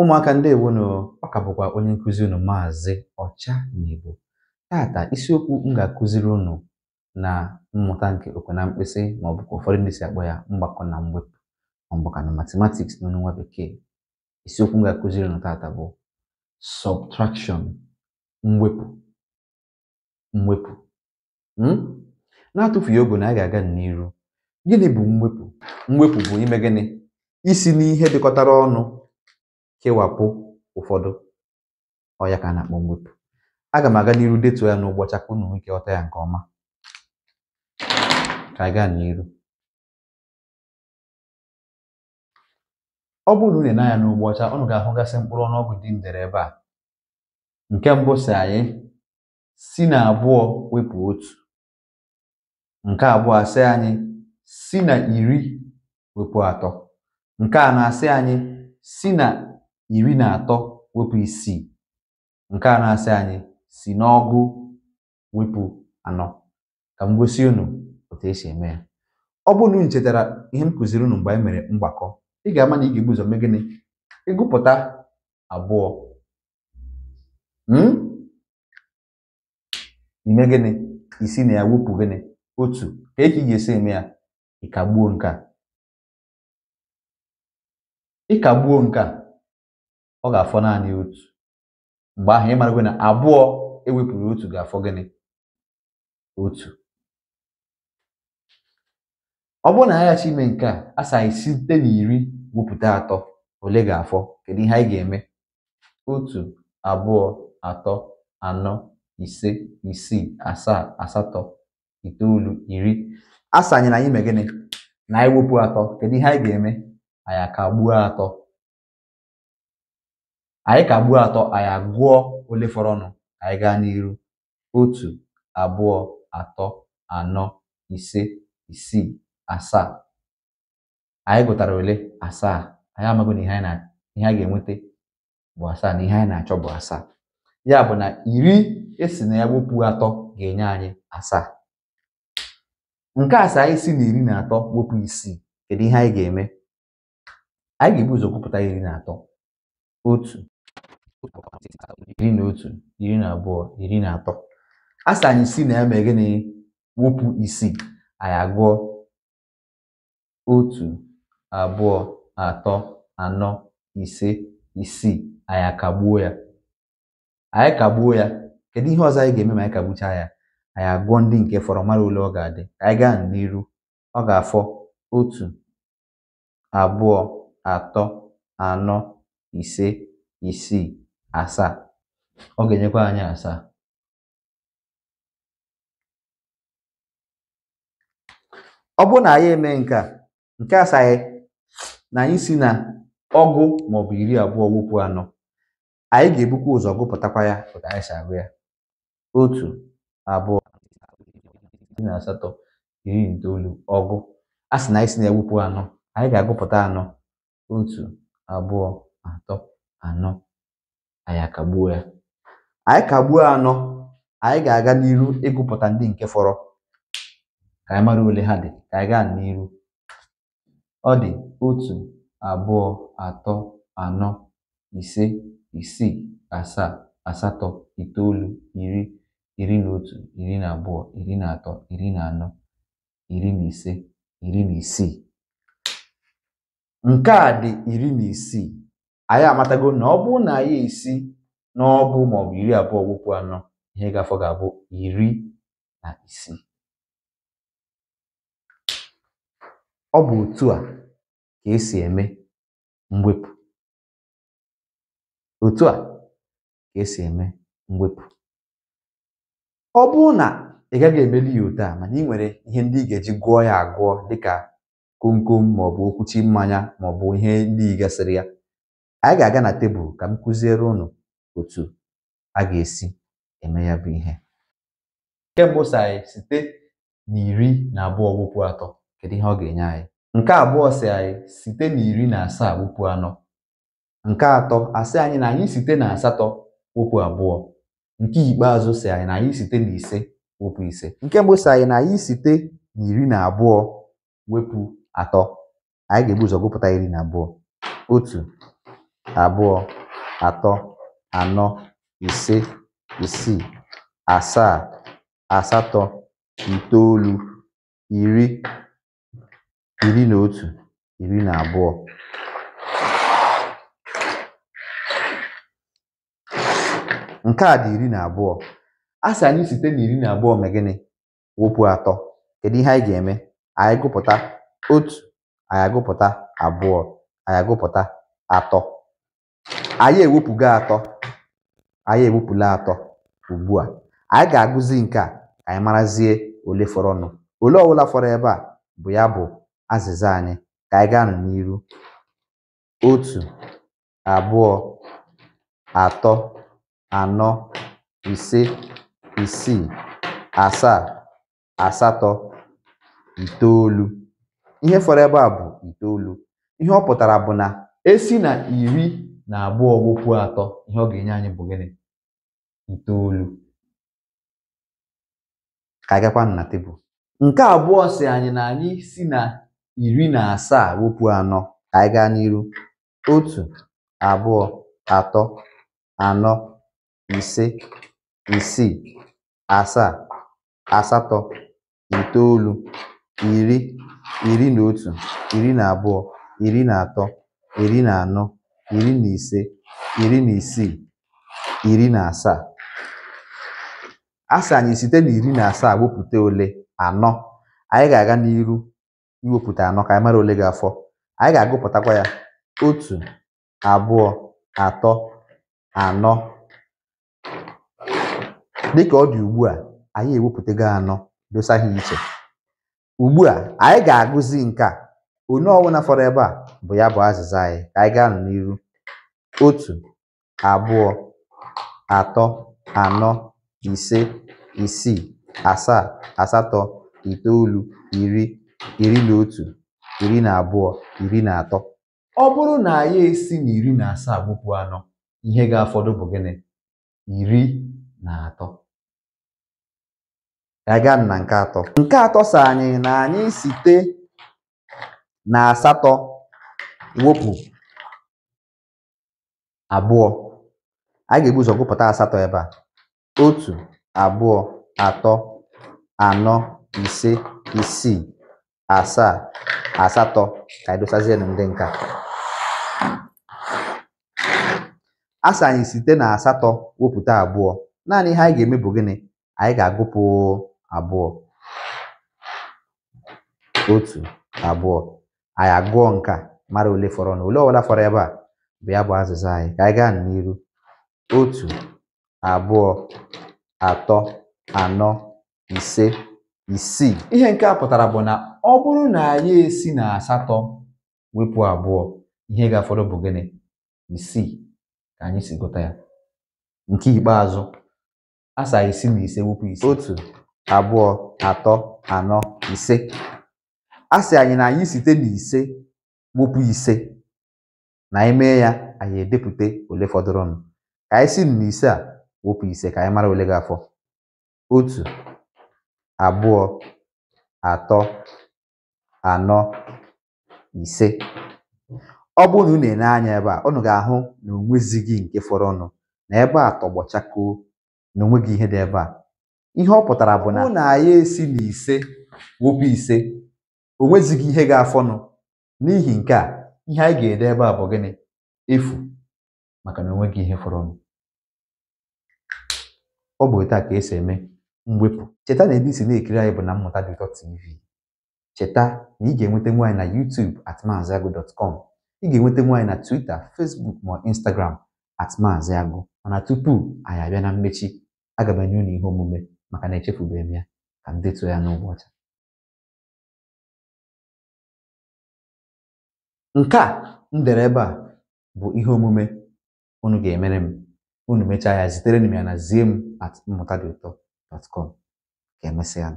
ụmụaka ndị ewonu ọ bụkwa onye nkụzi unu maazị ọcha na igbo tata isiokwu m ga-akụziri unu na mmụta nke okwe na mkpịsị ma ọ bụkwa ụfọdụ ndị si akpọ ya mgbakọ na mwepụ ọ bụkwa na matematiks n'ọnụ nwa bekee isiokwu m ga-akụziri unu tata bụ sọbtrakshọn mwepụ mwepụ hmm? na-atụfughị oge na a ga-aga n'iru gịnị bụ mwepụ mwepụ bụ ime gịnị isi n'ihe dịkọtara ọnụ kewapụ ụfọdụ ọya ka a na-akpọ mwepụ aga m aga n'iru detuo ya n'ụgbọcha ka unu nwee ike ya nke ọma ka gaa n'iru ọ bụrụ na unu na-anya n'ugbo unu ga-ahụgasị mkpụrụ ọnụọgụ dị ndere ebe a nke mbụ si anyị si na abụọ wepụ otu nke abụọ asị anyị si na iri wepụ atọ nke a na-asị anyị si na iri na atọ wepụ isii nke a na-asị anyị si n'ọgụ wepụ anọ ka m gosi unu otu esi eme ya ọ bụrụ na unu chetara ihe m kụziri unu mgbe anyị mere mgbakọ ị ga-ama na ị ga-ebu ụzọ mee gịnị ịgụpụta abụọ ime hmm? gịnị isi na ya wepụ gịnị otu ka ị ga-esi eme ya ịkagbuo nke a ịkagbuo nke a ọ ga-afọ naanị otu mgbe ahụ ị iwe na abụọ ewepụrụ otu ga-afọ gịnị otu ọ bụrụ na aghachi ime nke a asaghị site na iri wepụta atọ ole ga-afọ kedu ihe anyị ga-eme otu abụọ atọ anọ ise isii asaa asatọ itoolu iri asanyere anyị gịnị na anyị wepụ atọ kedu ihe anyị ga-eme anyị akagbuo atọ anyị ka gbuo atọ anyị agụọ ole fọrọnụ anyị gaa n'iru otu abụọ atọ anọ ise isii asaa anyị gụtara ole asaa anyị amaghị na ihe anyị na ga-enweta bụ asaa na ihe anyị na-achọ bụ asaa ya bụ na iri esi na ya wepụ atọ ga-enye anyị asaa nke asaa anyị si na iri na atọ gbopụ isii kedu ihe anyị ga-eme anyị ga-ebu ụzọ kwupụta iri na atọ otu iri na otu iri na abụọ iri na atọ a anyị si na ya ma gịnị wụpụ isii anyị agụọ otu abụọ atọ anọ ise isii anyị ya anyị kagbuo ya kedu ihe ọzọ anyị ga-eme ma anyị kagbuchaa ya anyị agụọ ndị nke fọrọ mara ole ọ ga-adị anyị gaa n'iru ọ ga-afọ otu abụọ atọ anọ ise isii asaa ọ ga-enyekwa anyị asaa ọ bụrụ na anyị eme nke nke asaghị na anyị si na ọgụ maọbụ iri abụọ gwụpụ anọ anyị ga-ebukwa ụzọ gụpụtakwa ya otu anyị si agụ ya otu abụọ na asatọ iri itoolu ọgụ a sị na anyị si na-egwupụ anọ anyị ga-agụpụta anọ otu abụọ atọ anọ anyị akagbuo ya anyị kagbuo anọ anyị ga-aga n'iru ịgụpụta ndị nke fọrọ ka anyị mara ole ha dị ka anyị gaa n'iru ọ dị otu abụọ atọ anọ ise isii asaa asatọ itoolu iri iri na otu iri na abụọ iri na atọ iri na anọ iri na ise iri na isii nke a dị iri na isii anyị amatago na ọ bụrụ na anyị esi n'ọbụ maọbụ iri abụọ wụpụ anọ ihe gafọ ga-abụ iri na isii ọ bụ otu a ka esi eme mwepụ otu a ka esi eme mwepụ ọ bụrụ na ị gaghị emeli ya otu a mana ị nwere ihe ndị ị ga-eji gụọ ya agụọ dịka komkom maọbụ okwuchi mmanya maọbụ ihe ndị ị gasịrị ya Anyị ga-aga na tebụl ka m kụziere ụnụ otu a ga-esi eme ya bụ ihe. Nke mbụ sị anyị site na iri na abụọ wụpụ atọ kedu ihe ọ ga-enye anyị. Nke abụọ si anyị site na iri na asaa wụpụ anọ. Nke atọ asị anyị na anyị site na asatọ wụpụ abụọ. Nke ikpeazụ si anyị na anyị site na ise wepụ ise. Nke mbụ si anyị na anyị site na iri na abụọ wepụ atọ. Anyị ga-ebu ụzọ gụpụta iri na abụọ. Otu abụọ atọ anọ ise isii asaa asatọ itoolu iri iri na otu iri na abụọ nke a dị iri na abụọ, a anyị site na iri na abụọ mee gịnị atọ kedu ihe anyị ga-eme anyị gụpụ̀ta otu anyị agụpụ̀ta abụọ anyị atọ anyị ewepụgo atọ anyị ewepụla atọ ugbu a anyị ga-agụzi nke a ka anyị marazie ole fọrọnụ ole ọbụla fọrọ ebe a bụ ya bụ azịza anyị ka anyị gaa anọ n'iru otu abụọ atọ anọ ise isii asaa asatọ itoolu ihe fọrọ ebe a bụ itoolu ihe ọ pụtara bụ na esi na iri na abụọ gwụkwuo atọ ihe ọ ga-enye anyị bụ gịnị itoolu ka agakwa na tebụl nke abụọ si anyị na anyị si na iri na asaa wepụ anọ ka anyị gaa n'iru otu abụọ atọ anọ ise isii asaa asatọ itoolu iri iri na otu iri na abụọ iri na atọ iri na anọ iri na ise iri na isii iri na asaa a anyị site na iri na asaa wepụta ole anọ anyị ga-aga n'iru iwepụta anọ ka anyị mara ole ga-afọ anyị ga-agụpụtakwa ya otu abụọ atọ anọ dịka ọ dị ugbu a anyị ewepụtago anọ dosa ha iche ugbu a anyị ga-agụzi nke a Onye ọwụna fọrọ ebe a bụ ya bụ azịza anyị ka anyị gaa anọ n'iru. Otu, abụọ, atọ, anọ, ise, isii, asaa, asatọ, itoolu, iri, iri na otu, iri na abụọ, iri na atọ. Ọ bụrụ na anyị esi na iri na asaa gbụpụ anọ, ihe ga-afọdụ bụ gịnị? Iri na atọ. Anyị gaa na nke atọ. Nke atọ sa anyị na anyị site na asatọ wepụ abụọ a ga-ebu ụzọ gụpụta asatọ ebe a otu abụọ atọ anọ ise isii asaa asatọ ka edosazie na ndị nka asị anyị site na asatọ wepụta abụọ naanị ihe anyị ga-eme bụ gịnị anyị ga-agụpụ abụọ otu abụọ anyị agụọ nke a mara ole fọrọ na ole ọbụla fọrọ ebe a bụ ya bụ azịza anyị ka anyị gaa n'iru otu abụọ atọ anọ ise isii ihe nke a pụtara bụ na ọ bụrụ na anyị esi na asatọ wepụ abụọ ihe ga-afọrọ bụ gịnị isii ka anyị si gụta ya nke ikpeazụ asaa isi na ise wepụ isi otu abụọ atọ anọ ise a anyị na anyị site n'ise, ise ise na anyị ya anyị edepụta ole fọdụrụnụ ka anyị si n'ise a wepụ ise ka anyị mara ole gafọ afọ otu abụọ atọ anọ ise ọ bụrụ na unu na-ene anya ebe a unu ga-ahụ na gị nke fọrọnụ na ebe a tọgbọ na onweghị ihe dị ebe a ihe ọ pụtara bụ na na anyị esi n'ise ise ise o nwezighị ihe ga-afọnụ n'ihi nke a ihe anyị ga-ede ebe a bụ gịnị efu maka na onweghị ihe fọrọnụ ọ bụ otu a ka esi eme mwepụ cheta na ebe isi na-ekiri anyị bụ na mmụta dị tv cheta na ị ga-enweta nwaanyị na YouTube at maaziagụ.com ị ga-enweta nwaanyị na Twitter Facebook ma Instagram at agụ mana tupu anyị abịa na mmechi aga m enye unu ihe omume maka na echefubeghị m ya ka m detuo ya n'ụbọchị Nke a m dere ebe a bụ ihe omume unu ga-emere m unu mechaa ya zitere m ya na zie m at mmụta dị ụtọ dot ka emesịa